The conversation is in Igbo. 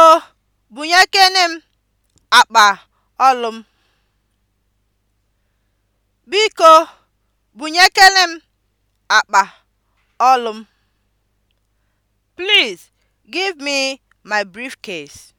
Biko bunyekene m akpa olu m. Biko bunyekene m akpa olu m. Please give me my briefcase.